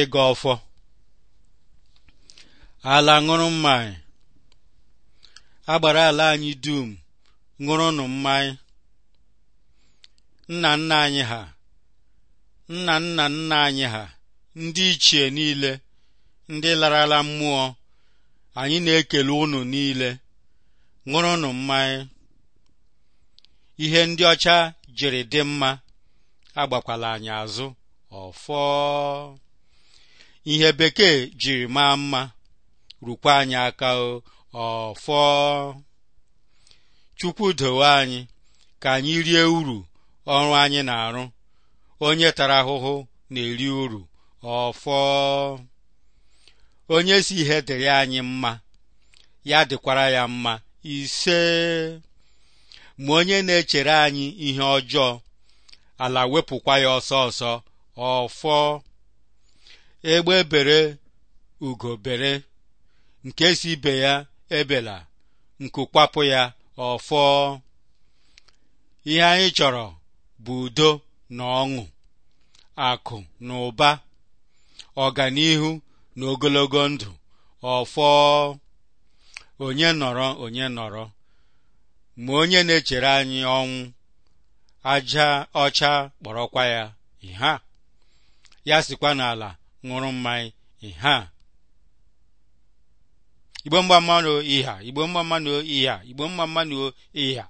ịgọ ọfọ ala ṅụrụ mmanya agbara ala anyị dum ṅụrụnụ mmanya nna nna anyị ha nna nna nna anyị ha ndị ichie niile ndị larala mmụọ anyị na-ekele ụnụ niile ṅụrụnụ mmanya ihe ndị ọcha jiri dị mma agbakwala anyị azụ ọfọ ihe bekee jiri maa mma rukwa anyị aka ọfọ chukwu dowe anyị ka anyị rie uru ọrụ anyị na-arụ onye tara ahụhụ na-eri uru ọfọ onye si ihe dịrị anyị mma ya dịkwara ya mma ise ma onye na-echere anyị ihe ọjọọ ala wepụkwa ya ọsọ ọsọ ọfọ egbe bere ugo bere nke si ibe ya ebela nku kwapụ ya ọfọ ihe anyị chọrọ bụ udo na ọṅụ akụ na ụba ọganihu na ogologo ndụ ọfọ onye nọrọ onye nọrọ ma onye na-echere anyị ọnwụ aja ọcha kpọrọkwa ya ihe ya sikwa n'ala ṅụrụ mmanya ịha igbo mgba mmanụ ịha igbo mgba mmanụ ịha igbo mgba mmanụ ịha